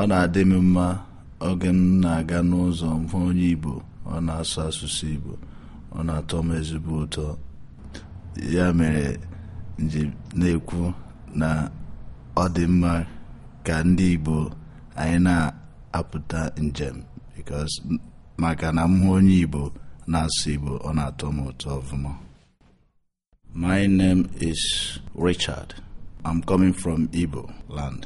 ọ na-adị m mma oge m na-aga n'ụzọ mhụ onye Igbo ọ na-asụ asụsụ Igbo ọ na-atọ m ezigbo ụtọ ya mere nji na-ekwu na ọ dị mma ka ndị Igbo anyị na-apụta njem maka na mhụ onye Igbo na-asụ Igbo ọ na-atọ m ụtọ ọfụma My name is Richard. I'm coming from Igbo land.